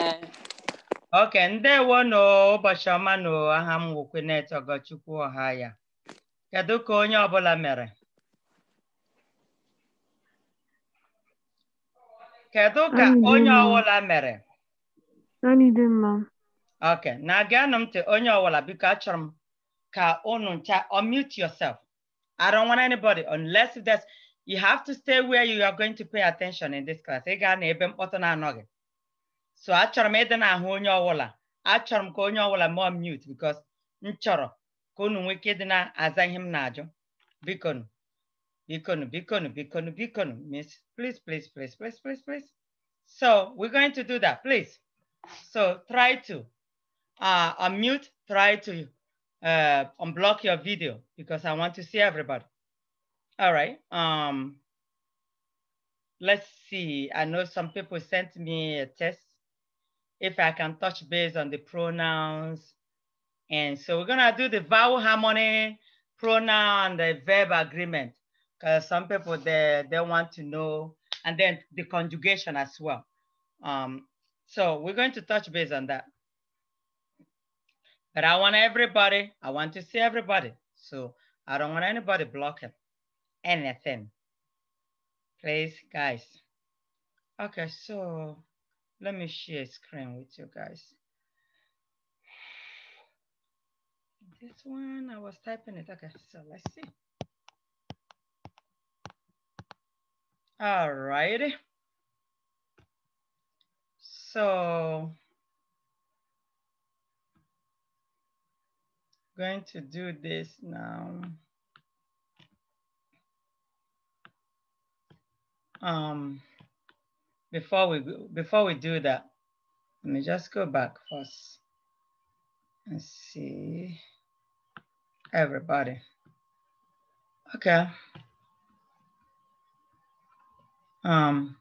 Eh. Ok ndewo n'ụbọchị ọma na aha m wokwenet Ogochukwu ọha ya kedu ka onye ọbụla mere kedu ka onye ọwụla mere Ok, na-agịanụ m ntị onye ọwụla biko achọrọ m ka unu ncha mute yourself I don't want anybody unless there's you have to stay where you are going to pay attention in this class ị gaa na ebe mkpọtụ na-anọghị so achọrọ m ịdị n'ahụ onye ọbụla achọrọ m ka onye ọbụla mụọ m mute because m chọrọ ka unu nwee ike ịdị na-aza ihe m na-ajụ bikonu bikonu bikonu bikonu bikonu miss please please please please please please so we're going to do that please so try to uh, unmute try to uh, unblock your video because I want to see everybody all right um let's see. I know some people sent me a test if I can touch base on the pronouns. And so we're gonna do the vowel harmony, pronoun, and the verb agreement, because some people, they, they want to know, and then the conjugation as well. Um, so we're going to touch base on that. But I want everybody, I want to see everybody. So I don't want anybody blocking anything. Please, guys. Okay, so let me share screen with you guys. This one, I was typing it. Okay, so let's see. All right. So going to do this now. Um, before we before we do that, let me just go back first and see everybody. Okay. Um,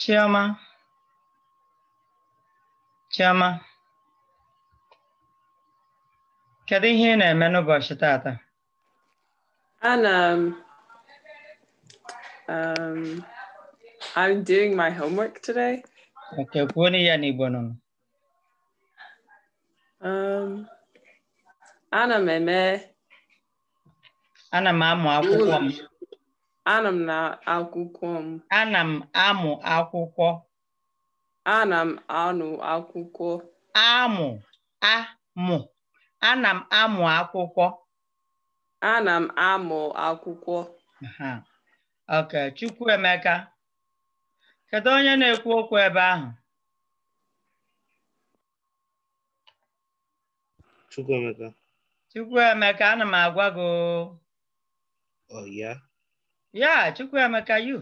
Chioma, Chioma, kedu ihe ị tata? Ana m um, I'm doing my homework today. Ukioni yan Igbo nunu? Um, ana m eme. Ana m amụ akwụkwọ m. Ana na akwụkwọ m. Ana m amụ akwụkwọ. Ana m anụ akwụkwọ. Amụ amụ. Ana m amụ akwụkwọ. Ana m amụ akwụkwọ. Ok, Chukwuemeka. Kedu onye na-ekwu okwu ebe ahụ? Chukwuemeka. Chukwuemeka, ana m agwa gị. Oh, yeah? Yeah, Chukwuemeka, you.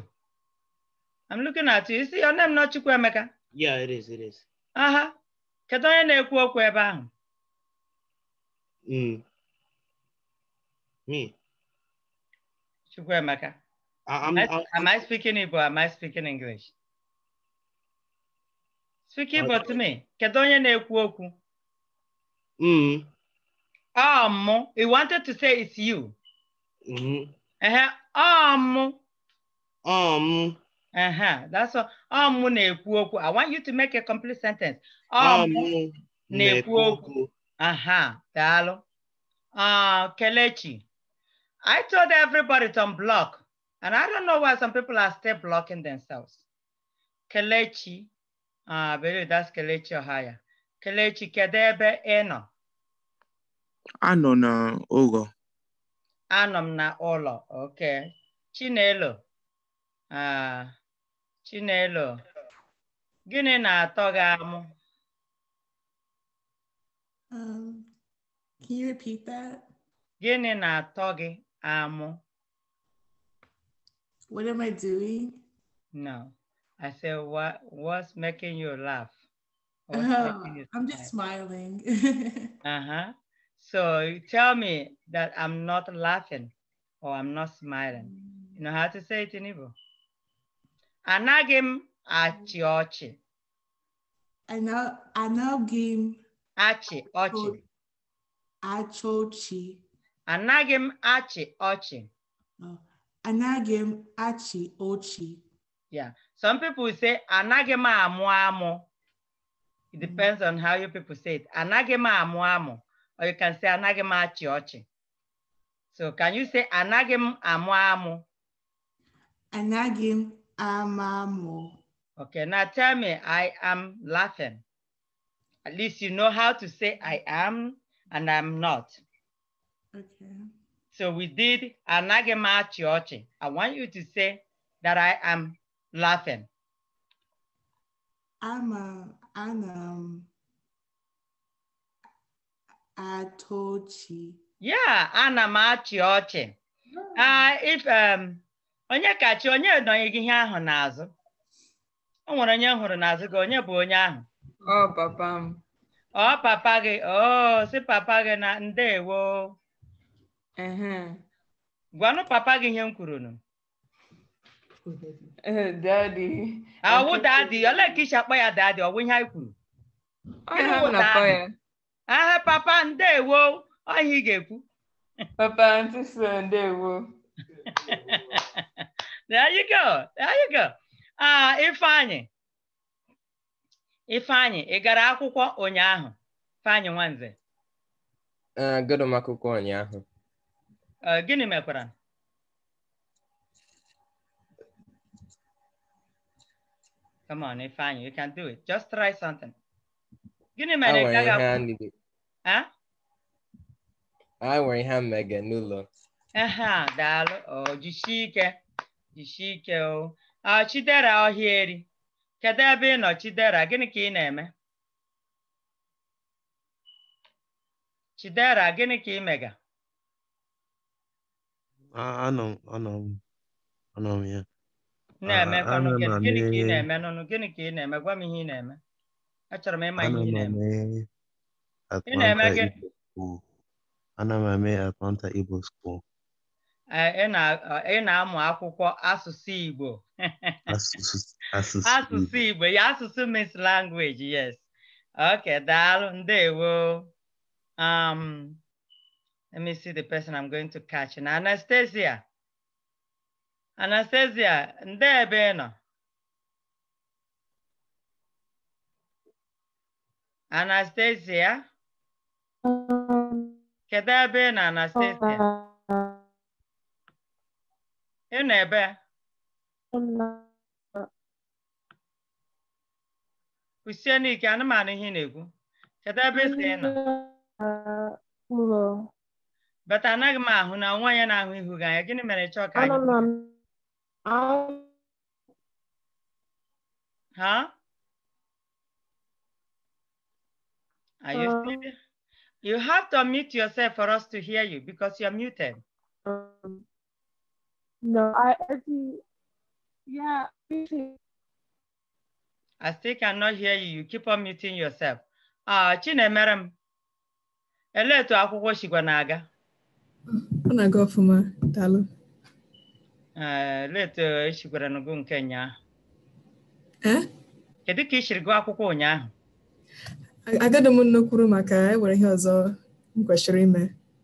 I'm looking at you. You see your name not Chukwuemeka? Yeah, it is, it is. Aha. Kedu onye na-ekwu okwu ebe ahụ? Mm. Me. Chukwuemeka. I'm, I'm, am I speaking Igbo? Am I speaking English? Speaking about me, kedu onye na-ekwu okwu? Mm. Um, he wanted to say it's you. Hmm. Uh-huh. Um. Um. Uh-huh. That's all. Um na-ekwu okwu. I want you to make a complete sentence. Um, um na-ekwu okwu. Uh-huh. Daalụ. Uh, Kelechi. I told everybody to unblock, and I don't know why some people are still blocking themselves. Kelechi Ah, very that's Kelechi Ohaya. Kelechi, kedu ebe ị nọ? Anọ na Anọ m na ụlọ, okay. Chinelo. Ah, Chinelo. Gịnị na-atọ gị amụ? Um, can you repeat that? Gịnị na-atọ gị amụ? What am I doing? No. I said, what, what's making you laugh? Oh, I'm just smiling. uh-huh. So you tell me that I'm not laughing or I'm not smiling. You know how to say it in Igbo? Anagim m achị ọchị. Anagim m achị ọchị. Achị oh, ọchị. achị ọchị. Anagim m achị ọchị. Yeah. Some people say, anagema amuamo. It depends on how you people say it. Anagema amuamo. Or you can say anagema achi So can you say anagem amuamo? amu? Anagem amamu. Okay, now tell me, I am laughing. At least you know how to say I am and I'm not. Okay. So we did anagema chiochi. I want you to say that I am laughing? I'm a, I'm um Atochi. Yeah, ana m achị ọchị. Ah, if um onye kachi onye nọghị gị ihe ahụ n'azụ. O nwere onye hụrụ n'azụ gị, onye bụ onye ahụ? Ọ papa m. Ọ papa gị, o si papa gị na ndewo. Gwanụ papa gị ihe m kwuru nụ. ọwụ dadị olee ka isi akpọ ya dadị ọwụ ihe anyị kwuru aha papa ndewo ọhịa ị ga-ekwu papa ntụso ndewo there you go there you go ah ifeanyị ifeanyị ị gara akwụkwọ ụnyaahụ ifeanyị nwanze agụrụ ah, m akwụkwọ ụnyaahụ ah, gịnị mekwara Come on, Ifan, you can do it. Just try something. I wear a Gini menegaga. Huh? Awari ha mega Uh-huh. dalo. Oh, jishike. Jishike o. Ah, Chidera ohieri. Kedu ebe ị nọ Chidera? Gịnị ka ị na-eme? Eh? Chidera, gịnị ki ka ị mega? Ah, I know. I know. I know ya. نعمة أنا كنك نعمة أنا كنك نعمة قام هي نعمة أشر ما ما هي نعمة نعمة كن أنا ما ما أتمنى إيبو سكول ị na-amụ akwụkwọ asụsụ Igbo asụsụ Igbo ya asụsụ means language yes okay daalụ ndewo um let me see the person I'm going to catch na Anastasia Anastasia, nde ebe ị nọ? Anastasia? Kedụ ebe ị nọ Anastasia? Ị nọ ebe? Kwụsie n'ike anụmanụ ihe na-ekwu. Kedụ ebe ị nọ? Bata anaghị m ahụ na nwa onye na-ahụ ihu gị anya, gịnị mere chọọ ka anyị? huh? Are you uh, You have to unmute yourself for us to hear you because you're muted. Um, no, I, I yeah. I still cannot hear you. You keep on muting yourself. Ah, uh, madam. Hello to akwụkwọ shigwa na-aga. Ọ na for my Dalu. Eh, leetu echigwara gị nke ụnyaahụ eh? kedu ka ị siri gụọ akwụkwọ ụnyaahụ agadị m nnekwuru maka enwere ihe ọzọ m kwesịrị ime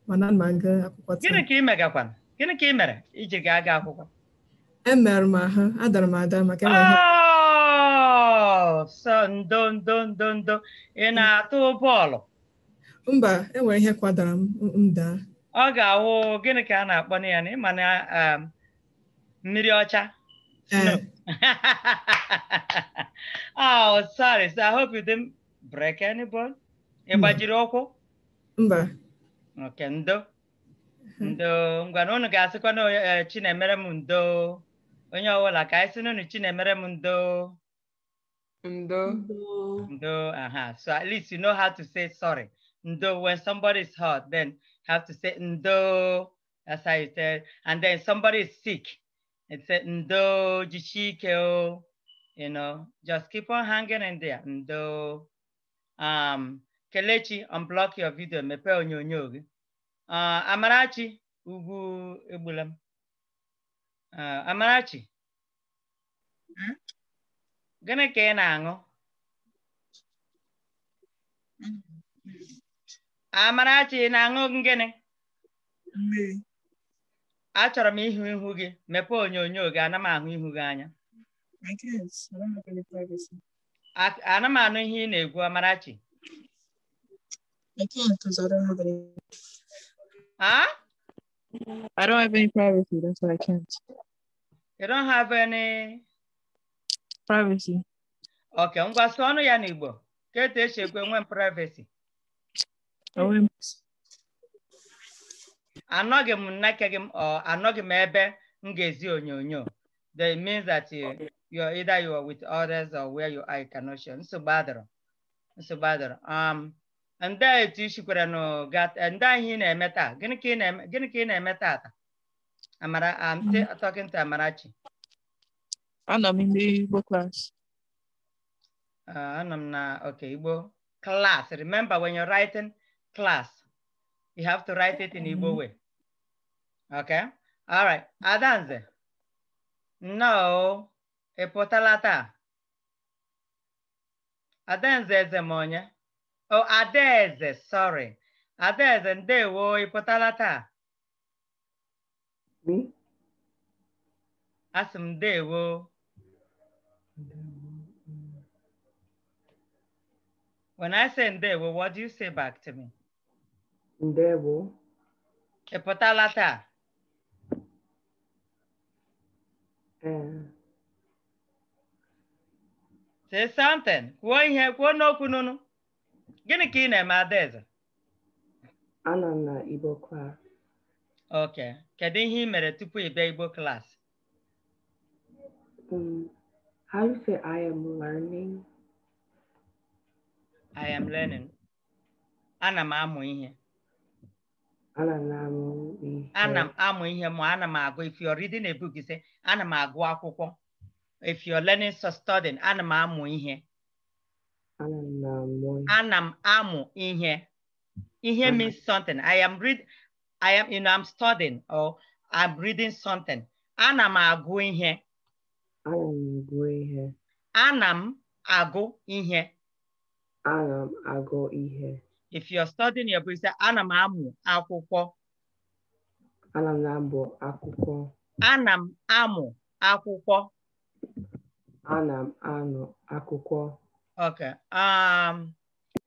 mana ma gụ akwụkwọ gịnị ka ị megakwara gịnị ka ị mere iji gaa gaa akwụkwọ E emerụ m ahụ adara m ada maka oh, sọ ndo ndo ndo ndo ị mm. na-atụ bọọlụ mba enwere ihe kwadara m m daa ọ ga-awụ gịnị ka a na-akpọ na ya na ịma na mmiri ọcha? Eh. No. oh, sorry. So I hope you didn't break any bone. Ị gbajiri mm. ụkwụ? Mba. Okay, ndo. Ndo. Ngwana unu ga-asịkwa na eh, Chinemere m ndo. Onye ọbụla ka anyị sị n'unu Chinemere m ndo. Ndo. Ndo. Aha. So at least you know how to say sorry. Ndo. When somebody is hurt, then have to say ndo. That's how you say And then somebody is sick. It said ndo jichikeo, you know, just keep on hanging in there. Ndo. Um, Kelechi, unblock your video, mepe onyonyo gị. Uh, Amarachi, ugu, egbula m. Uh, Amarachi. Gịnị ka ị na-aṅụ? Amarachi, ị na-aṅụ gịnị? Mmiri. achọrọ m ịhụ ihu gị mepee onyonyo gị ana m ahụ ihu gị anya ana m anụ ihe ị na-egwu Amarachi Huh? I don't have any privacy. That's why I can't. You don't have any privacy. Okay, ngwa sụọ ọnụ ya n'Igbo. Ka etu esi ekwe nwee privacy. Enwe m anọghị m nneke gị anọghị m ebe onyonyo that means that you, okay. you're either you are with others or where you are, you cannot share. Nsogbu adịrọ. Nsogbu adịrọ. Um, ndị etu i sikwara n'ụga, ndị ihe ị na-eme taa, gịnị ka ị na-eme, gịnị ka ị na-eme taata? I'm um, mm-hmm. talking to Amarachi. i Anọ m n'Igbo class. Uh, I'm na, okay, Igbo class. Remember when you're writing class, you have to write it in mm-hmm. Igbo way. Okay? All right. Adanze. No. Epotalata. Adanze is a Oh, Adeze, sorry. Adeze, ndewo, epotalata. Me? Asị m ndewo. When I say ndewo, what do you say back to me? Ndewo. Ị pụtala taa? Ee. Eh. Say something. Kwuo ihe, kwuo n'okwu nụnụ. Gịnị ka ị na-eme Adaeze? Anọ m na Igbo class. Ok. Kedu ihe mere tupu ibe Igbo class? Um, how you say I am learning? I am learning. Ana m amụ ihe. ana m amụ ihe ma ana m agụ if you're reading a book ise ana m agụ akwụkwọ if you're learning so studying ana m amụ ihe ana m amụ ihe ihe means something i am read i am you know i'm studying or i'm reading something ana m agụ ihe ana m agụ ihe ana m agụ ihe if you're studying your book, say, ana m amụ akwụkwọ. Ana m amụ akwụkwọ. Ana m amụ akwụkwọ. Ana m amụ akwụkwọ. Okay. Um,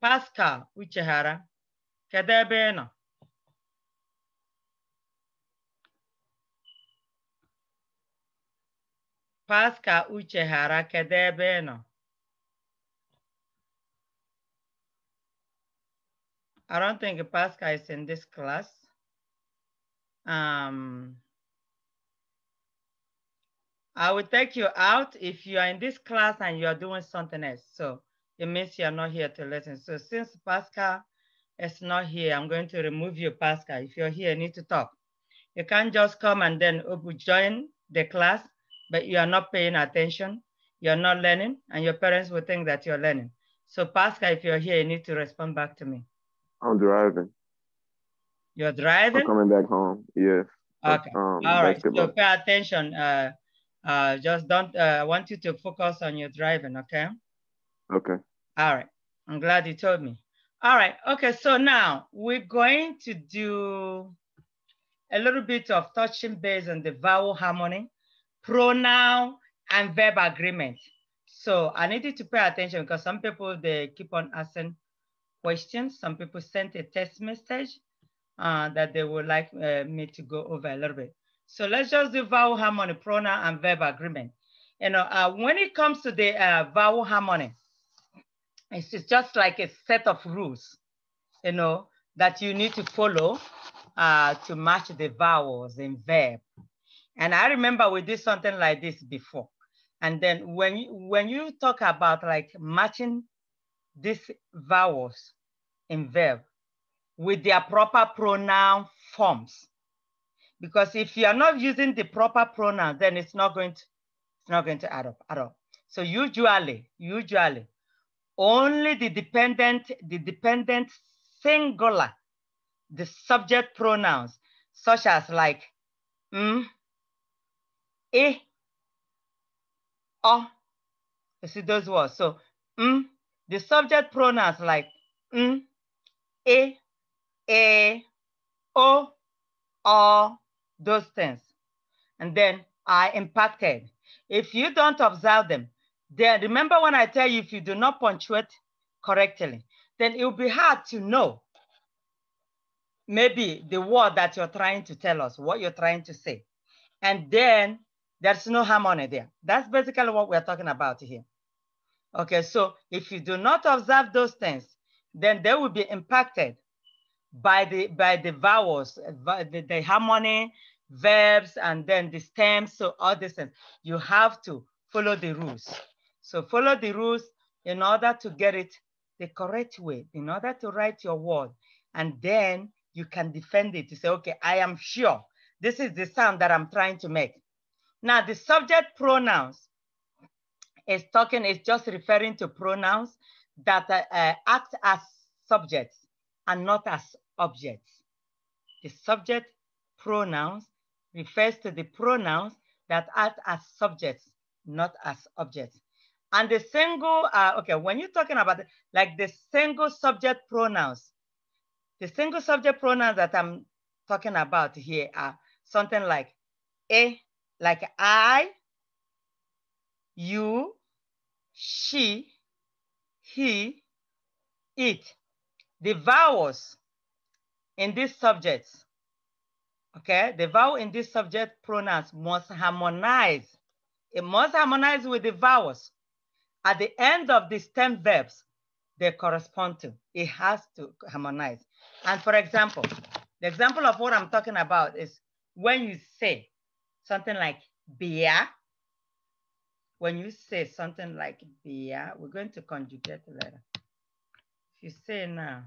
Pascal Uchehara kedu ebe ị nọ? Pascal Uchehara kedu ebe ị nọ? I don't think Pascal is in this class. Um, I will take you out if you are in this class and you are doing something else. So it means you are not here to listen. So since Pascal is not here, I'm going to remove you, Pascal. If you're here, you need to talk. You can't just come and then oh, join the class, but you are not paying attention, you're not learning, and your parents will think that you're learning. So Pascal, if you're here, you need to respond back to me. I'm driving. You're driving? I'm coming back home. Yes. Okay. Um, All right. Basketball. So pay attention. Uh, uh, just don't. Uh, I uh, want you to focus on your driving. Okay. Okay. All right. I'm glad you told me. All right. Okay. So now we're going to do a little bit of touching base on the vowel harmony, pronoun, and verb agreement. So I need you to pay attention because some people they keep on asking questions. Some people sent a test message uh, that they would like uh, me to go over a little bit. So let's just do vowel harmony, pronoun and verb agreement. You know, uh, when it comes to the uh, vowel harmony, it's just like a set of rules, you know, that you need to follow uh, to match the vowels in verb. And I remember we did something like this before. And then when you, when you talk about like matching these vowels in verb with their proper pronoun forms. Because if you are not using the proper pronoun, then it's not going to, it's not going to add up at all. So usually, usually, only the dependent, the dependent singular, the subject pronouns, such as like, mm, eh, oh, you see those words. So, mm, the subject pronouns like m, a, a, o, o, those things. And then I impacted. If you don't observe them, then remember when I tell you if you do not punctuate correctly, then it will be hard to know maybe the word that you're trying to tell us, what you're trying to say. And then there's no harmony there. That's basically what we're talking about here. Okay, so if you do not observe those things, then they will be impacted by the by the vowels, by the, the harmony, verbs, and then the stems. So all these things, you have to follow the rules. So follow the rules in order to get it the correct way, in order to write your word, and then you can defend it. to say, okay, I am sure this is the sound that I'm trying to make. Now the subject pronouns is talking, is just referring to pronouns that uh, uh, act as subjects and not as objects. The subject pronouns refers to the pronouns that act as subjects, not as objects. And the single, uh, okay, when you're talking about like the single subject pronouns, the single subject pronouns that I'm talking about here are something like a, eh, like I, you, she, he, it, the vowels in these subjects, okay? The vowel in these subject pronouns must harmonize. It must harmonize with the vowels at the end of the stem verbs they correspond to. It has to harmonize. And for example, the example of what I'm talking about is when you say something like beer, when you say something like beer, we're going to conjugate later. If you say now,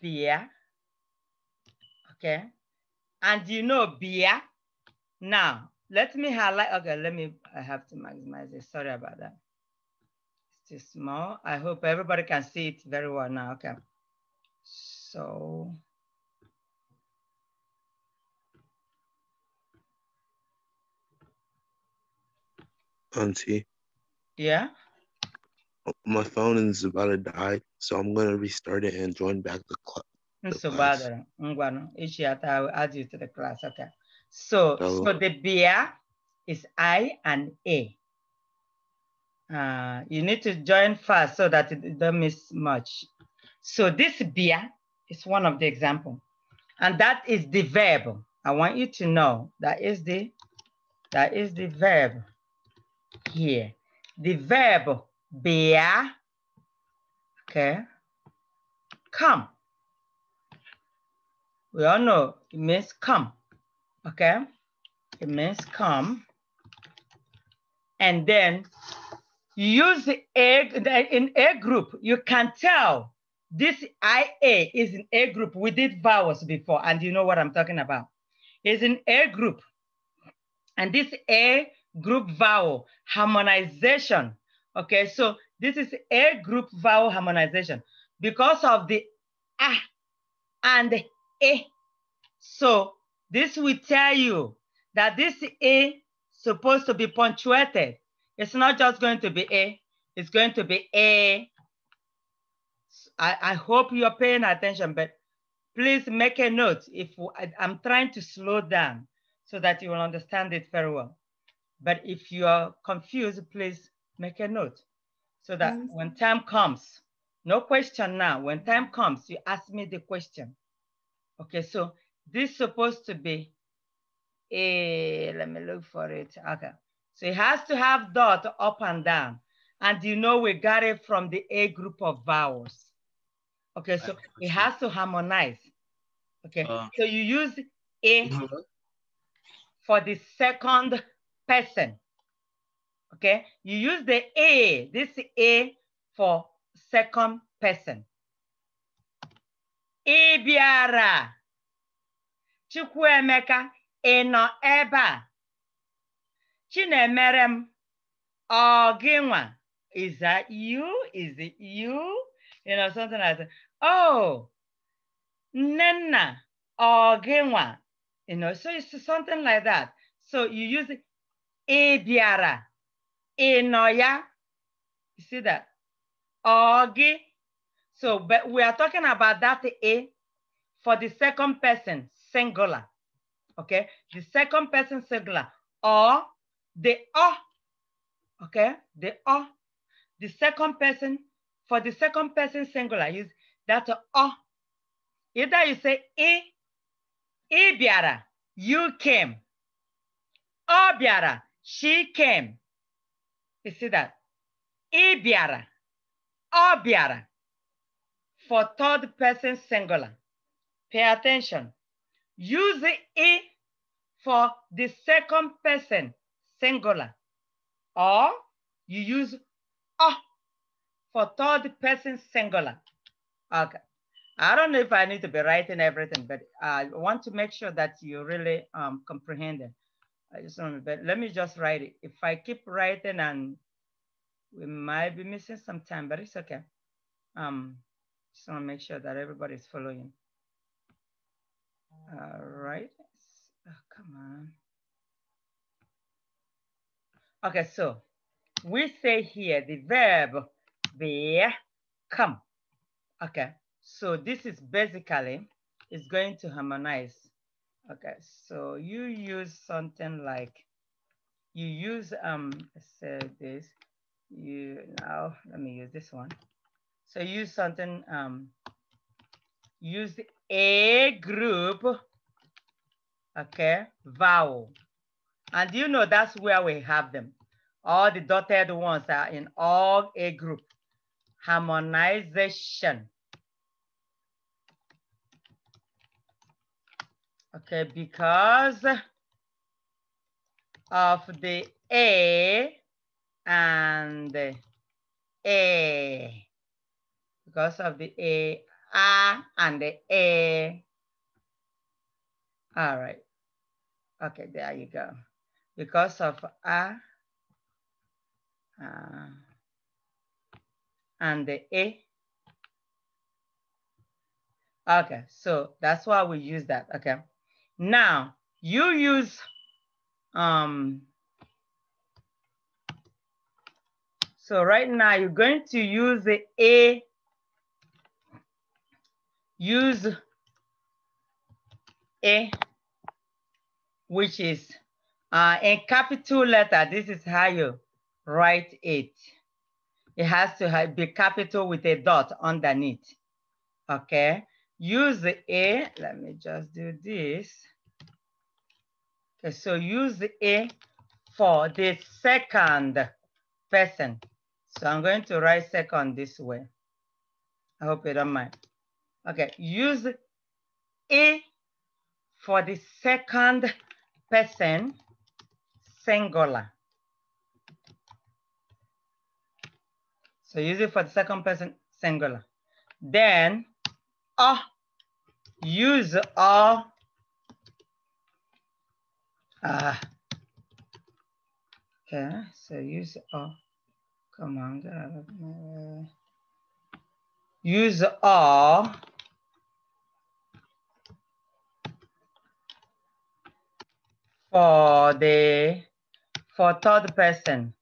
beer, okay? And you know beer. Now, let me highlight, okay, let me, I have to maximize it. Sorry about that. It's too small. I hope everybody can see it very well now, okay? So, Auntie. Yeah. My phone is about to die, so I'm gonna restart it and join back the, cl- the so class. each year I will add you to the class. Okay. So, Hello. Oh. so the beer is I and A. Uh, you need to join fast so that it don't miss much. So this beer is one of the example, and that is the verb. I want you to know that is the that is the verb here. The verb bear, okay, come. We all know it means come, okay? It means come. And then you use the A, in A group, you can tell this IA is in A group. We did vowels before, and you know what I'm talking about. It's in A group. And this A group vowel harmonization. Okay, so this is a group vowel harmonization because of the ah and a. So this will tell you that this a supposed to be punctuated. It's not just going to be a, it's going to be a. I, I hope you're paying attention, but please make a note if I, I'm trying to slow down so that you will understand it very well. But if you are confused, please make a note so that yes. when time comes, no question now, when time comes, you ask me the question. Okay, so this is supposed to be a, let me look for it, okay. So it has to have dot up and down. And you know we got it from the A group of vowels. Okay, so it has to harmonize. Okay, uh, so you use A mm-hmm. for the second person. Okay, you use the A, this A for second person. Ị bịara. Chukwuemeka, ị nọ ebe a? Chinemere m, Is that you? Is it you? You know, something like that. Oh, nenna ọ gị You know, so it's something like that. So you use e bịara e nọ ya you see that ọ so but we are talking about that e for the second person singular okay the second person singular or the o, okay the o, the second person for the second person singular is that o. either you say e, i bịara you came ọ bịara she came. You see that? Ibiara, bịara. For third person singular. Pay attention. Use it for the second person singular. Or you use ọ for third person singular. Okay. I don't know if I need to be writing everything, but I want to make sure that you really um, comprehend it. I just don't but let me just write it. If I keep writing and we might be missing some time, but it's okay. Um, just wanna make sure that everybody's following. All right, oh, come on. Okay, so we say here the verb be come. Okay, so this is basically, is going to harmonize Okay, so you use something like, you use, um, say this, you now, let me use this one. So use something, um, use a group, okay, vowel. And you know that's where we have them. All the dotted ones are in all a group. Harmonization. Okay, because of the A and A. Because of the A, A and the A. All right. Okay, there you go. Because of A uh, and the A. Okay, so that's why we use that, okay. Now, you use um, so right now you're going to use the A, use A, which is uh, in capital letter. This is how you write it. It has to be capital with a dot underneath, okay? use the A, let me just do this. Okay, so use the A for the second person. So I'm going to write second this way. I hope you don't mind. Okay, use A for the second person singular. So use it for the second person singular. Then a, use a, ah. Okay, so use a command. Uh, use a for the for third person.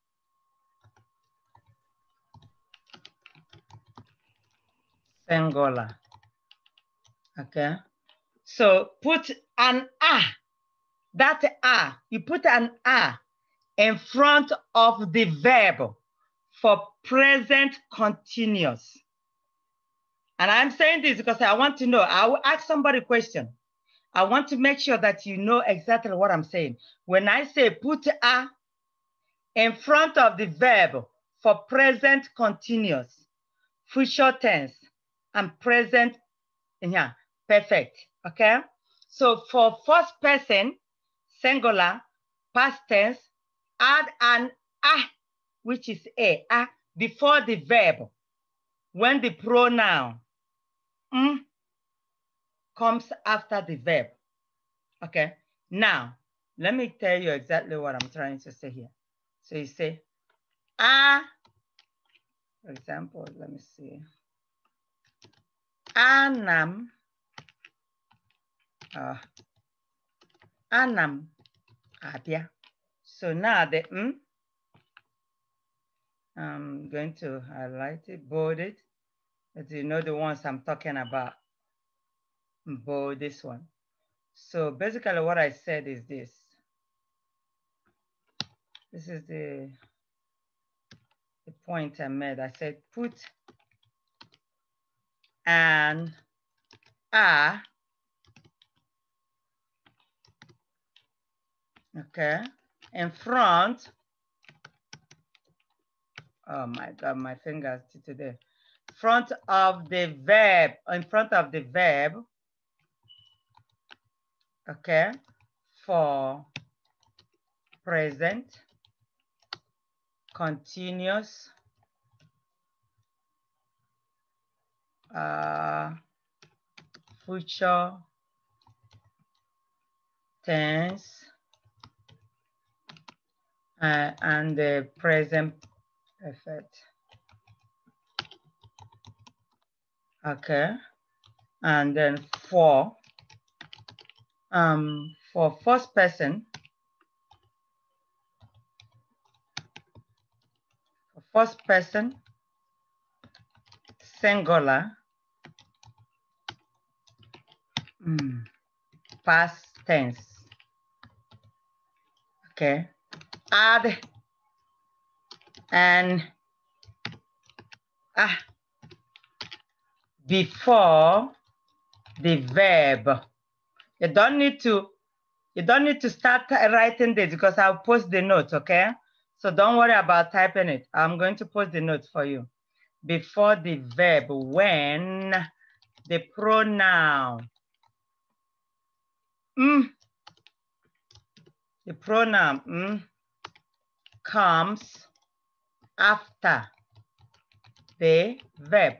singular. Okay. So put an ah, that ah, you put an ah in front of the verb for present continuous. And I'm saying this because I want to know, I will ask somebody a question. I want to make sure that you know exactly what I'm saying. When I say put a in front of the verb for present continuous, future tense, and present, yeah, Perfect. Okay. So for first person, singular, past tense, add an ah, which is a, ah, before the verb. When the pronoun mm, comes after the verb. Okay. Now, let me tell you exactly what I'm trying to say here. So you say, ah, for example, let me see. Anam uh, anam abia. So now the m, hmm? I'm going to highlight it, bold it. As you know the ones I'm talking about, bold this one. So basically what I said is this. This is the, the point I made. I said put an a okay? In front, oh my God, my fingers today. Front of the verb, in front of the verb, okay? For present, continuous, uh, future tense, uh, and the present effect Okay. And then for, um, for first person, first person, singular, mm, past tense. Okay add and ah, before the verb. You don't need to, you don't need to start writing this because I'll post the note, okay? So don't worry about typing it. I'm going to post the note for you. Before the verb, when the pronoun, mm, the pronoun, mm, comes after the verb.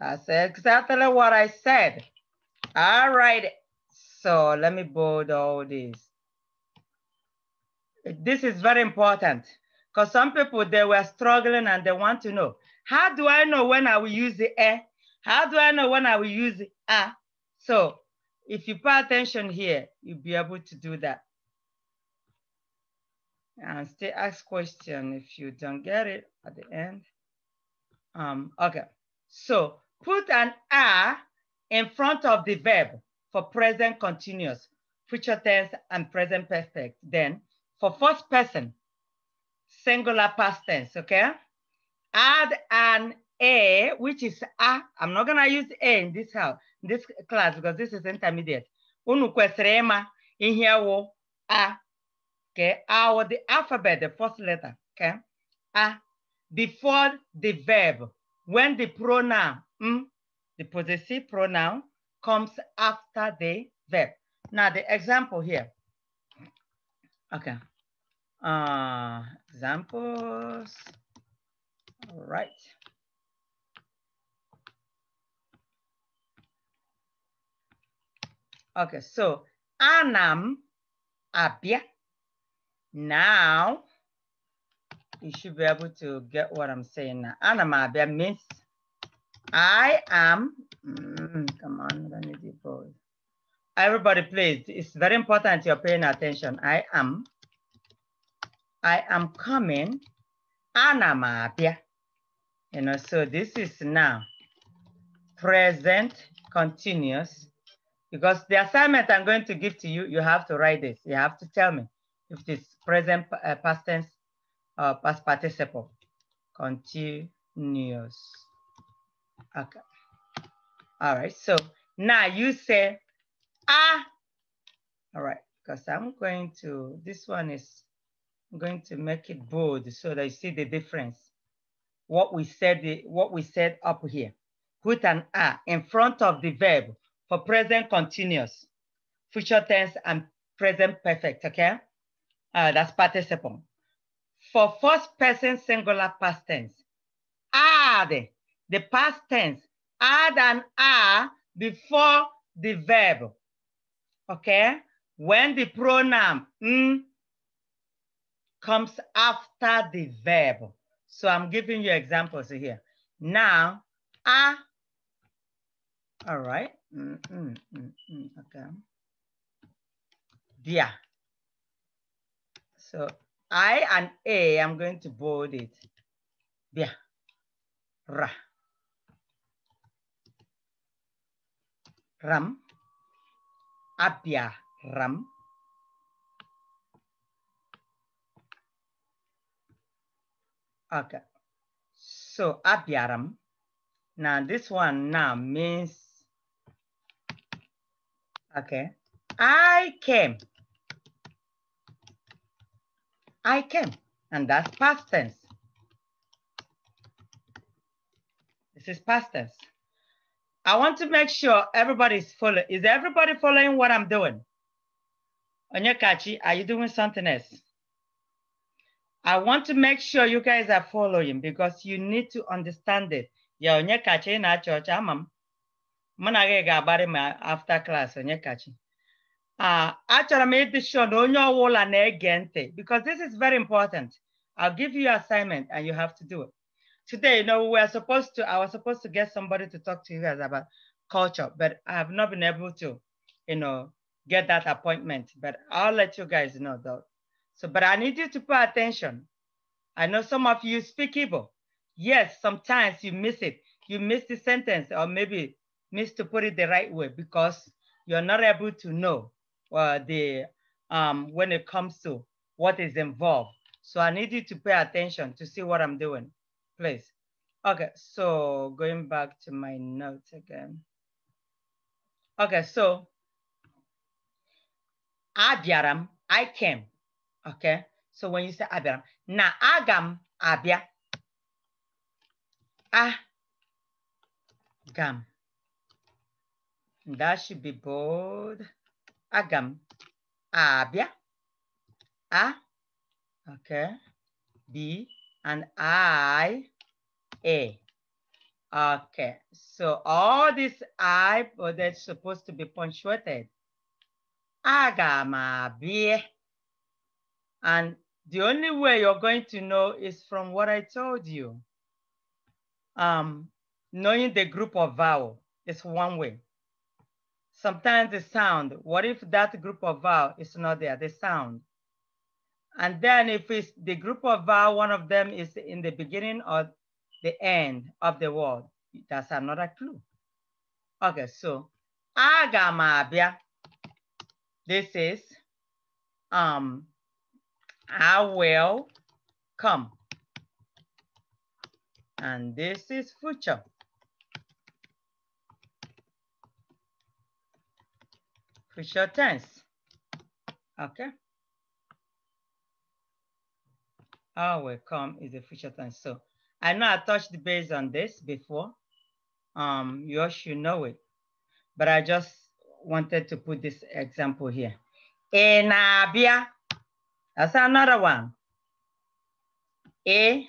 That's exactly what I said. All right, so let me bold all this. This is very important because some people, they were struggling and they want to know, how do I know when I will use the How do I know when I will use a? So if you pay attention here, you'll be able to do that and still ask question if you don't get it at the end. Um, okay, so put an "a" in front of the verb for present continuous, future tense and present perfect. Then for first person, singular past tense, okay? Add an A, which is A. I'm not gonna use A in this house, in this class, because this is intermediate. Unu kwesịrị in here wo A okay, our the alphabet, the first letter, okay, ah, before the verb, when the pronoun, mm, the possessive pronoun comes after the verb. Now the example here, okay, uh, examples, all right. Okay, so anam abia now, you should be able to get what I'm saying now. Anamabia Miss, I am, mm, come on, let me be bold. Everybody, please, it's very important you're paying attention. I am, I am coming, Anna anamabia. You know, so this is now present continuous because the assignment I'm going to give to you, you have to write this. You have to tell me if it's present uh, past tense, uh, past participle, continuous. Okay. All right, so now you say, ah. All right, because I'm going to, this one is, I'm going to make it bold so that you see the difference. What we said, what we said up here. Put an ah in front of the verb for present continuous, future tense and present perfect, okay? Uh, that's participle. For first person singular past tense, add ah, the past tense, add ah, an are ah, before the verb. Okay? When the pronoun mm, comes after the verb. So I'm giving you examples here. Now, ah. All right. Mm, mm, mm, mm okay. Dear. So I and A, I'm going to bold it. Yeah. Ra. Ram. Abia. Ram. Okay. So ram. Now this one now means, okay, I came. I came, and that's past tense. This is past tense. I want to make sure everybody's following. Is everybody following what I'm doing? Onyekachi, are you doing something else? I want to make sure you guys are following because you need to understand it. Yeah, Onyekachi na church, amam. Manage gabare after class, Onyekachi. Uh, achọrọ m ịdịshọ na onye ọwụla na-ege ntị because this is very important. I'll give you assignment and you have to do it. Today, you know, we are supposed to, I was supposed to get somebody to talk to you guys about culture, but I have not been able to, you know, get that appointment. But I'll let you guys know though. So, but I need you to pay attention. I know some of you speak Igbo. Yes, sometimes you miss it. You miss the sentence or maybe miss to put it the right way because you're not able to know uh, the um, when it comes to what is involved. So I need you to pay attention to see what I'm doing, please. Okay, so going back to my notes again. Okay, so Abiram, I came. Okay, so when you say Abiram, na agam abia. Ah, gam. That should be bold agam, abbia, a, okay, b, and I, a. Okay, so all this I, well, that's supposed to be punctuated. Agamabi. And the only way you're going to know is from what I told you. Um, knowing the group of vowel is one way. Sometimes the sound. What if that group of vowel is not there, the sound? And then if it's the group of vowel, one of them is in the beginning or the end of the word. That's another clue. Okay, so agamabia. This is um I will come. And this is future. future tense. Okay. Oh, will come is the future tense. So I know I touched base on this before. Um, you all should know it, but I just wanted to put this example here. In Abia, that's another one. A.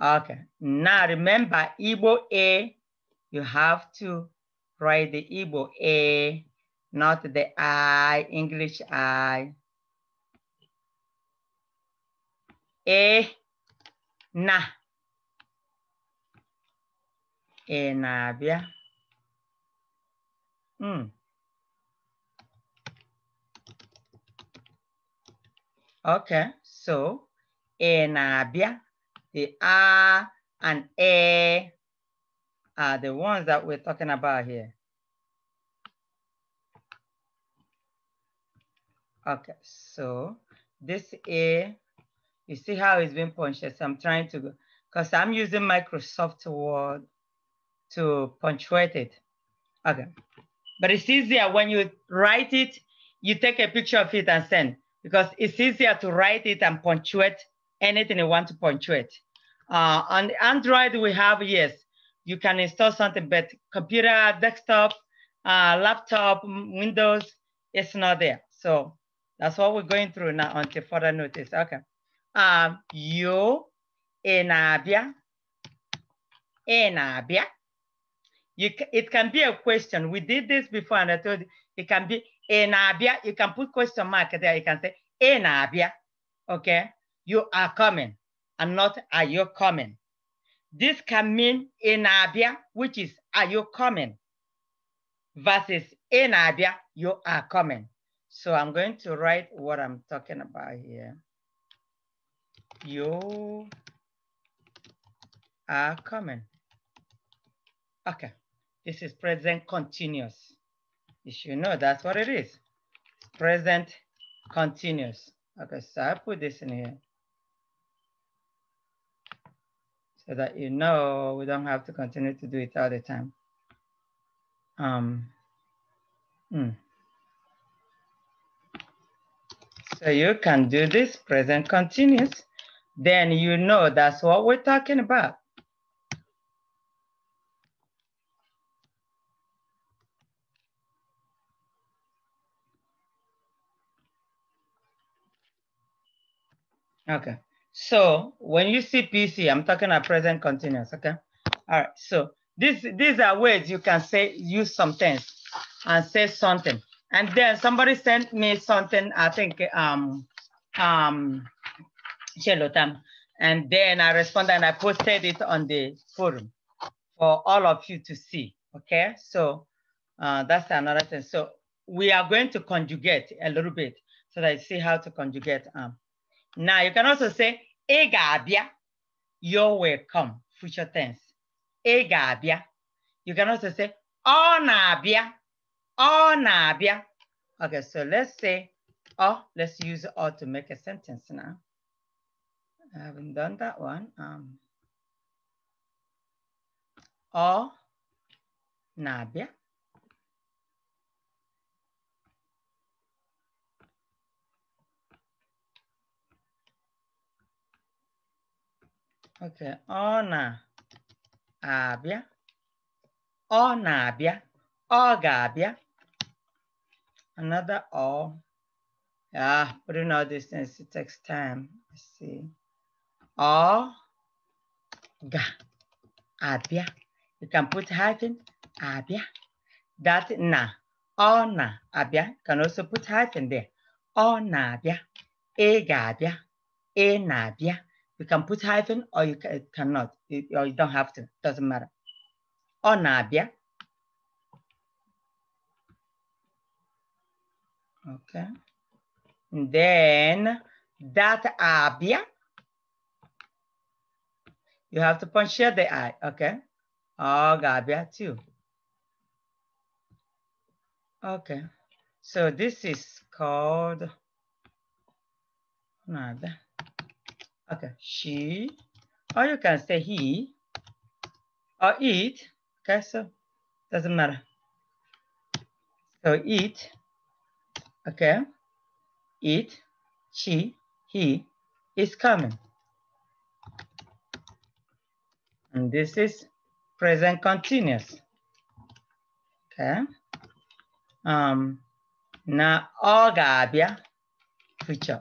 Okay. Now remember, Igbo A, you have to write the Igbo A, not the I, English I. E, na. E na bịa. Mm. Okay, so E na bịa, the A and E are the ones that we're talking about here. Okay, so this A, you see how it's been punctuated. So I'm trying to, because I'm using Microsoft Word to punctuate it. Okay, but it's easier when you write it, you take a picture of it and send, because it's easier to write it and punctuate anything you want to punctuate. Uh, on Android, we have, yes, you can install something, but computer, desktop, uh, laptop, Windows, it's not there. So that's what we're going through now until further notice. Okay. Um, you in Abia, in Abia. You, it can be a question. We did this before and I told you, it can be in Abia. You can put question mark there. You can say in Abia. Okay. You are coming and not are you coming. This can mean in Abia, which is are you coming? Versus in Abia, you are coming. So I'm going to write what I'm talking about here. You are coming. Okay, this is present continuous. You should know that's what it is. Present continuous. Okay, so I put this in here. so that you know we don't have to continue to do it all the time. Um, hmm. So you can do this present continuous. Then you know that's what we're talking about. Okay. So when you see PC, I'm talking about present continuous, okay? All right, so this, these are ways you can say, use some things and say something. And then somebody sent me something, I think, um, um, Shelotam. And then I responded and I posted it on the forum for all of you to see, okay? So uh, that's another thing. So we are going to conjugate a little bit so that you see how to conjugate. Um, now you can also say, egabia, ga-abịa, you are welcome. future tense. Egabia. ga-abịa. You can also say, ọ oh, na-abịa, o oh, na-abịa. Okay, so let's say, oh, let's use all to make a sentence now. I haven't done that one. Um, ọ oh, na-abịa. Okay, ona na-abịa, onabia, na na-abịa, ga-abịa. Another ọ. Yeah, putting all these it takes time. Let's see. Ọ ga-abịa. You can put hyphen, abịa. That na, ona na-abịa. You can also put hyphen there. Onabia, na na-abịa, i ga-abịa, na na-abịa. You can put hyphen or you can, cannot, you, or you don't have to, doesn't matter. Or nabia. Okay. And then that abia. You have to here the I, okay? Oh, gabia too. Okay. So this is called nabia. Okay, she, or you can say he, or it. Okay, so doesn't matter. So it, okay, it, she, he is coming. And this is present continuous. Okay. Um, na ogabia future.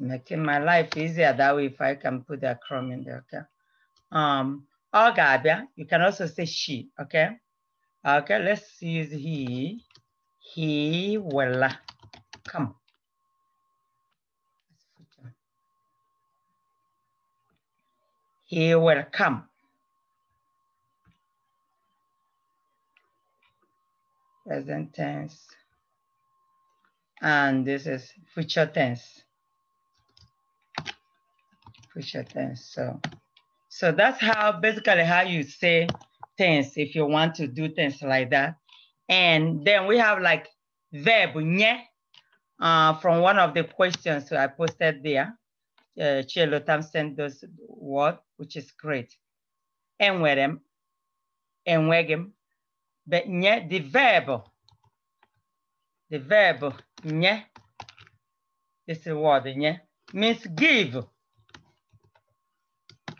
making my life easier that way if I can put the crumb in there, okay? Um, Agabia, oh, you can also say she, okay? Okay, let's use he. He will come. He will come. Present tense. And this is future tense push your things. So, so that's how basically how you say things if you want to do things like that. And then we have like verb nye uh, from one of the questions I posted there. Uh, Chelo Tam sent those word, which is great. Enwerem, enwegem, but nye the verb, the verb nye. This is word nye means give.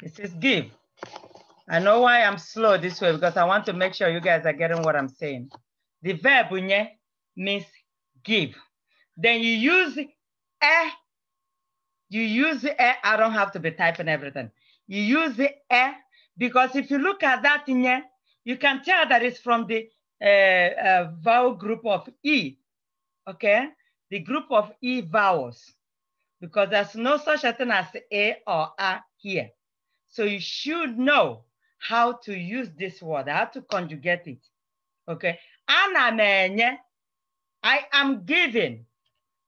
It says give. I know why I'm slow this way because I want to make sure you guys are getting what I'm saying. The verb unye means give. Then you use a, you use a, I don't have to be typing everything. You use a because if you look at that inye, you can tell that it's from the uh, uh, vowel group of E, okay? The group of E vowels because there's no such a thing as A or A here. So you should know how to use this word, how to conjugate it. Okay. Ana I am giving.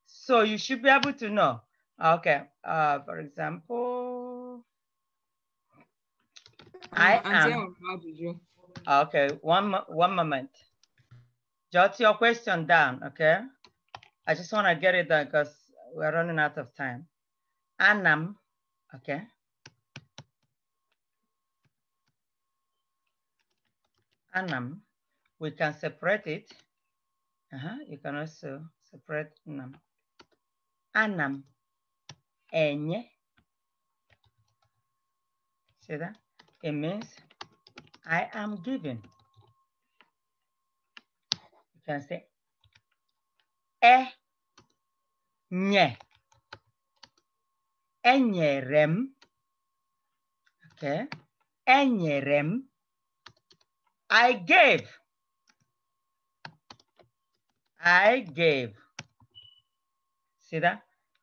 So you should be able to know. Okay. Uh, for example, I oh, am. Okay. One, one moment. Jot your question down. Okay. I just want to get it done because we're running out of time. Anam. Okay. annum, we can separate it. Uh -huh. You can also separate annum. Anam, enye. See that? It means I am given. You can say e nye. Enyerem. Okay. Enyerem. I gave. I gave. See that?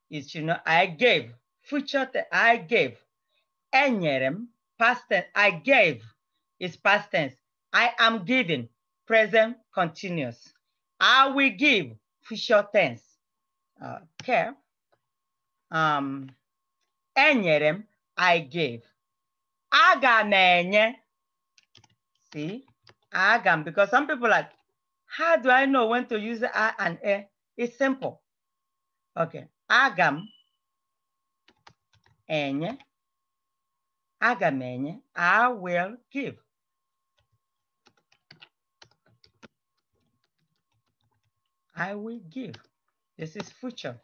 It's, you know, I gave. Future, I gave. Enyerem, past tense, I gave is past tense. I am giving, present continuous. I will give, future tense. Okay. Um, enyerem, I gave. Aga See? agam, because some people like, how do I know when to use a and e? It's simple. Okay, agam enye, agam enye, I will give. I will give. This is future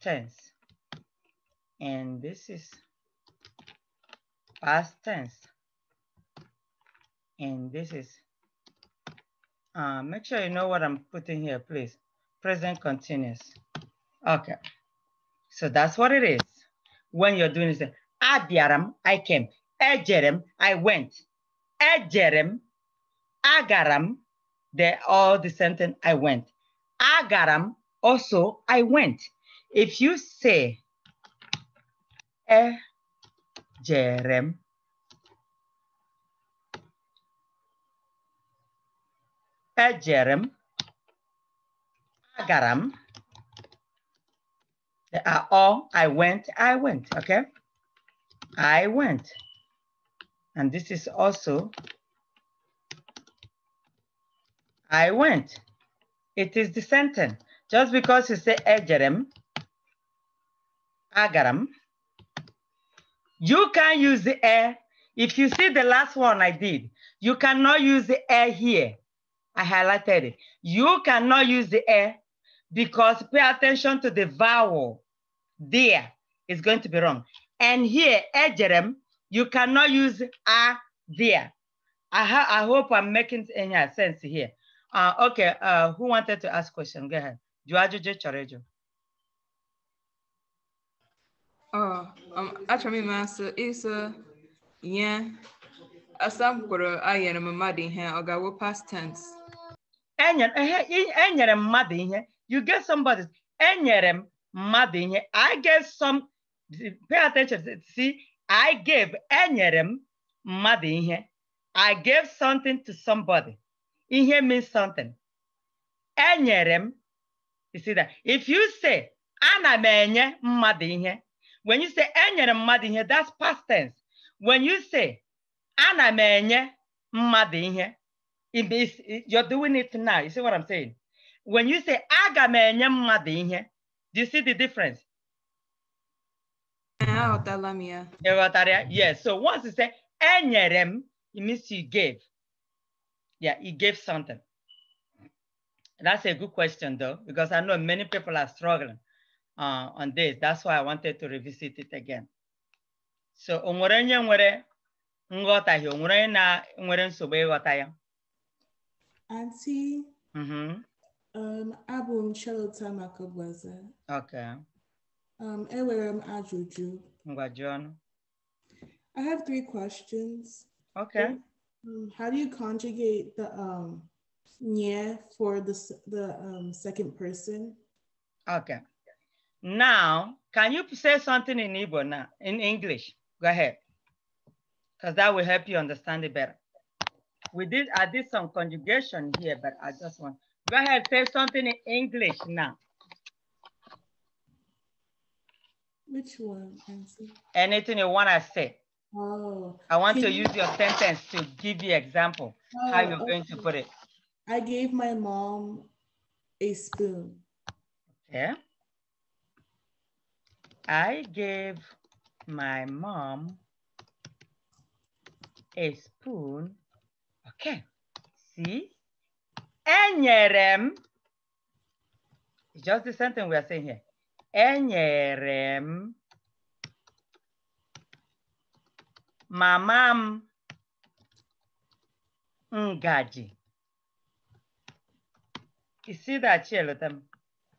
tense. And this is past tense and this is, uh, make sure you know what I'm putting here, please. Present continuous. Okay. So that's what it is. When you're doing this, Abiaram, I came. Jerem I went. Jerem Agaram, they all the sentence I went. Agaram, also I went. If you say Jerem. Ejerem, Agaram. They are all I went, I went, okay? I went. And this is also I went. It is the sentence. Just because you say Ejerem, Agaram, you can use the air. If you see the last one I did, you cannot use the air here. I highlighted it. You cannot use the air because pay attention to the vowel. There is going to be wrong. And here, ejerem, you cannot use a there. I, I hope I'm making any sense here. Uh, okay, uh, who wanted to ask question? Go ahead. Juajuju Chorejo. Oh, um, actually, master is uh, yeah. Asam kuro ayana mamadi hen ogawo past tense enyere mmadụ ihe you get somebody enyere m mmadụ ihe i get some pay attention see i gave enyere m mmadụ ihe i gave something to somebody ihe means something enyere m you see that if you say ana m enye mmadụ ihe when you say enyere mmadụ ihe that's past tense when you say ana m enye mmadụ ihe you're doing it now. You see what I'm saying? When you say aga do you see the difference? Yes. So once you say enyere it means you gave. Yeah, you gave something. That's a good question though, because I know many people are struggling uh, on this. That's why I wanted to revisit it again. So onwere onye nwere nghọtahie, onwere onye na nwere nsogbu ya auntie. Mm-hmm. Um, abụ m Charlotte Okay. Um, enwere m ajụjụ. Ngwa jụọ ọnụ. I have three questions. Okay. Um, how do you conjugate the um nye for the the um, second person? Okay. Now, can you say something in Igbo now, in English? Go ahead. Because that will help you understand it better we did, I did some conjugation here, but I just want, go ahead, say something in English now. Which one, Nancy? Anything you want to say. Oh. I want to you... use your sentence to give you example, oh, how you're okay. going to put it. I gave my mom a spoon. Okay. I gave my mom a spoon Okay, see, enyere it's just the same thing we are saying here. Enyere mamam, mama ngaji. You see that, Chelotem?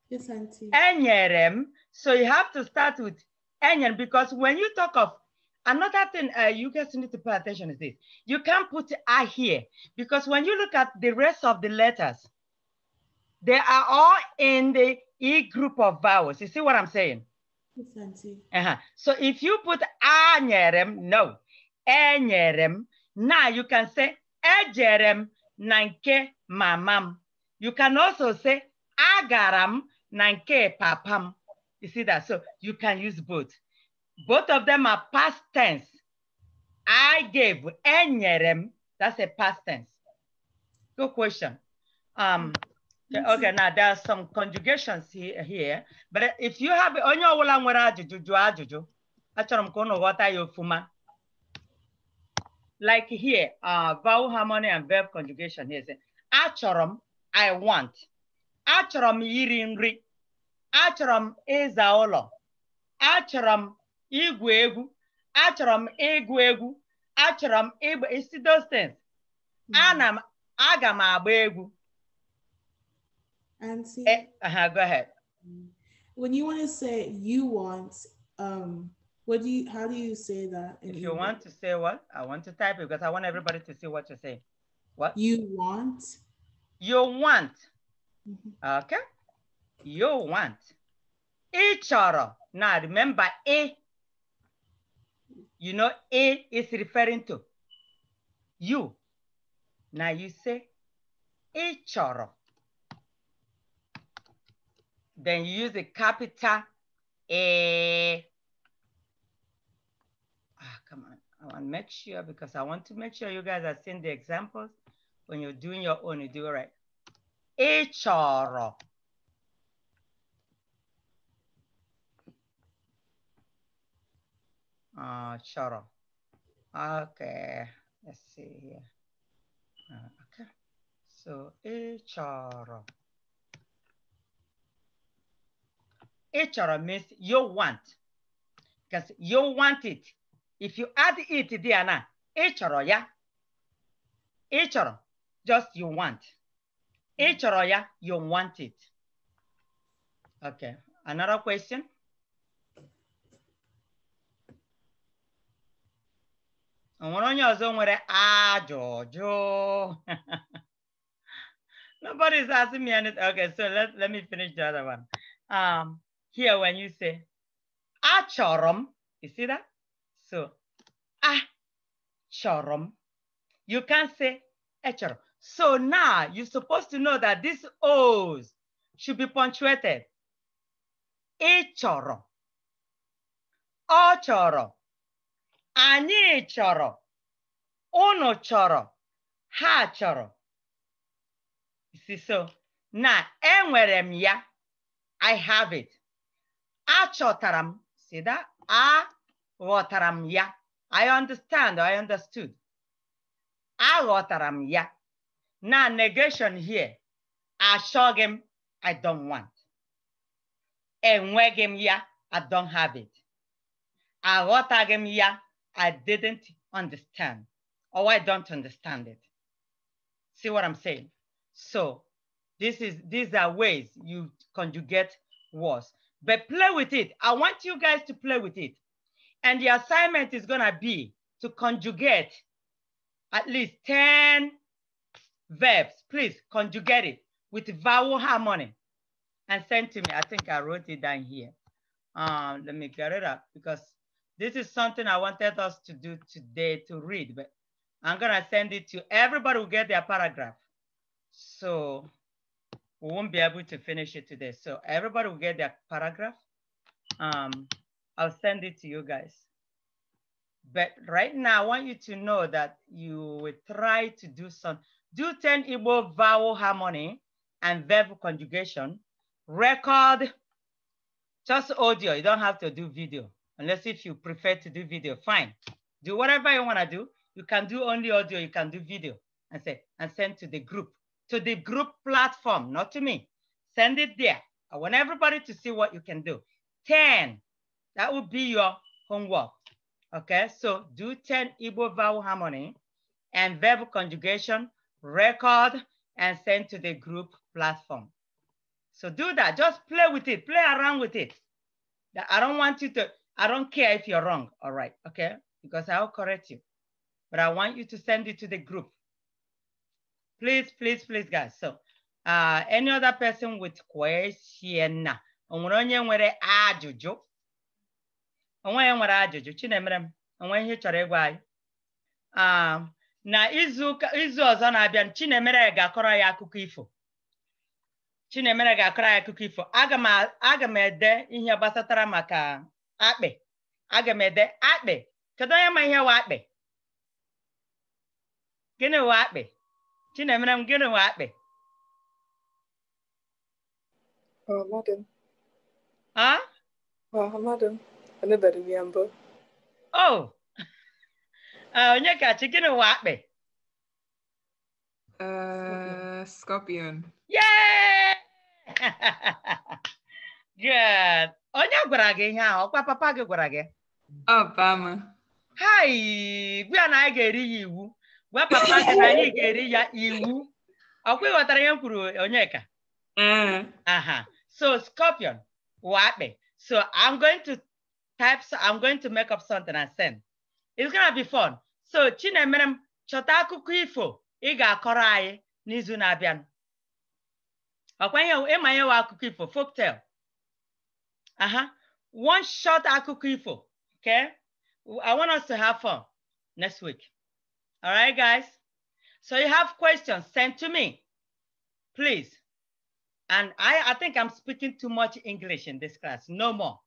Yes, auntie. Enyere So you have to start with enyere because when you talk of another thing uh, you guys need to pay attention is this. You can't put I here because when you look at the rest of the letters, they are all in the E group of vowels. You see what I'm saying? Yes, uh -huh. So if you put anyerem, no, enyerem, now you can say ejerem nanke mamam. You can also say agaram nanke papam. You see that? So you can use both. Both of them are past tense. I gave enyerem. That's a past tense. Good question. Um, okay, now there are some conjugations here, here but if you have onye wola nwere juju jụọ ajụjụ acharam kono ka ụnụ like here uh, vowel harmony and verb conjugation here Acharam I want Acharam m iri nri Acharam m ịza igwu egwu achọrọ m ịgụ egwu achọrọ m ịgba isi those hmm. ana m aga m agba egwu eh, go ahead. Hmm. When you want to say you want, um, what do you? How do you say that? If you English? want to say what, I want to type it because I want everybody to see what you say. What you want? You want. Mm -hmm. Okay. You want. Each other. Now remember, a you know, a is referring to you. Now you say, A chọrọ. Then you use the capital A. Ah, come on, I want to make sure because I want to make sure you guys are seeing the examples. When you're doing your own, you do it right. A chọrọ. uh, ah, Shara. Okay, let's see here. Uh, okay, so Ichara. Ichara means you want, because you want it. If you add it there now, Ichara, yeah? Ichara, just you want. Ichara, yeah, you want it. Okay, another question. onye ọzọ nwere ajụjụ nobody's asking me anything okay so let, let me finish the other one um, here when you say achọrọ m you see that so achọrọ m you can say echọrọ so now you're supposed to know that these o's should be punctuated ịchọrọ ọ chọrọ anyị chọrọ unu chọrọ ha chọrọ so na enwere m ya i have it achọtara m see that aghọtara m ya i understand i understood aghọtara m ya na negation here achọghị m i don't want enweghị m ya i don't have it aghọtaghị m ya I didn't understand or I don't understand it. See what I'm saying? So this is these are ways you conjugate words, but play with it. I want you guys to play with it. And the assignment is gonna be to conjugate at least 10 verbs. Please conjugate it with vowel harmony and send to me. I think I wrote it down here. Um, let me get it up because this is something I wanted us to do today to read, but I'm gonna send it to everybody who get their paragraph. So we won't be able to finish it today. So everybody will get their paragraph. Um, I'll send it to you guys. But right now, I want you to know that you will try to do some, do 10 Igbo vowel harmony and verb conjugation. Record, just audio, you don't have to do video unless if you prefer to do video, fine. Do whatever you wanna do. You can do only audio, you can do video and say, and send to the group, to the group platform, not to me. Send it there. I want everybody to see what you can do. 10, that would be your homework. Okay, so do 10 Igbo vowel harmony and verbal conjugation, record, and send to the group platform. So do that, just play with it, play around with it. I don't want you to, I don't care if you're wrong, all right, okay? Because I'll correct you. But I want you to send it to the group. Please, please, please, guys. So uh, any other person with question? Onwere onye nwere ajụjụ? Onwe nwere ajụjụ. Chinemere m, onwe ihe ịgwa um, na izu izu ọzọ na-abịa Chinemere ga-akọrọ ya akụkọ ifo. Chinemere ga-akọrọ ya akụkọ ifo. Aga m ede ihe gbasatara maka akpị aga m ede akpị kedu onye ma ihe wụ akpị gịnị wụ akpị chinemere m gịnị wụ akpị o onye kachi gịnị wụ akpị uh, scorpion Yeah. Good. Onye gwara gị ihe ahụ ọkwa papa gị gwara gị hai gwa na anyị ga-eri ya iwu gwa papa gị na anyị ga-eri ya iwu ọkwa ịghọtara ihe m kwuru onyeka mm. aha so scorpion wakpe so i'm going to type so i'm going to make up something and send it's gonna be fun so chinemerem chọta akụkọ ifo ị ga-akọrọ anyị n'izu na-abịa ọkwa ihe ịma ihe wa akụkọ ifo folktale Uh-huh. One shot akụkọ ifo. Okay. I want us to have fun next week. All right, guys. So you have questions, send to me, please. And I, I think I'm speaking too much English in this class. No more.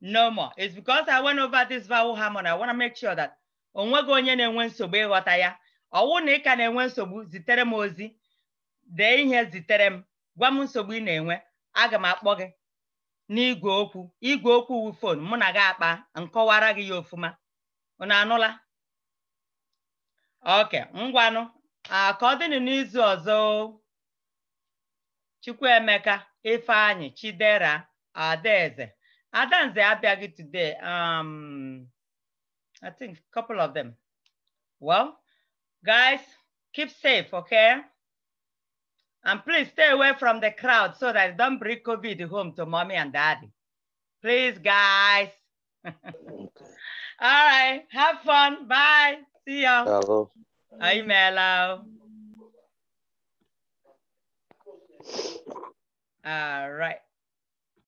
No more. It's because I went over this vowel harmony. I want to make sure that onwego onye na-enwe nsogbu ịghọta ya ọwụ na enwe nsogbu ighota ya owu na ka na-enwe nsogbu zitere m ozi ihe zitere m gwa m nsogbu ị aga m akpọ gị n'igwe okwu igwe okwu wu fon mụ na gị akpa nkọwara gị ya ofuma unu anụla oke ngwanụ ka ọ dịnụ n'izu ọzọ Chukwuemeka ifeanyi Chidera Adaeze Adanze abịaghị today um I think couple of them well guys keep safe okay And please stay away from the crowd so that don't bring COVID home to mommy and daddy. Please, guys. All right. Have fun. Bye. See ya. Hello. Hi, Melo. All right.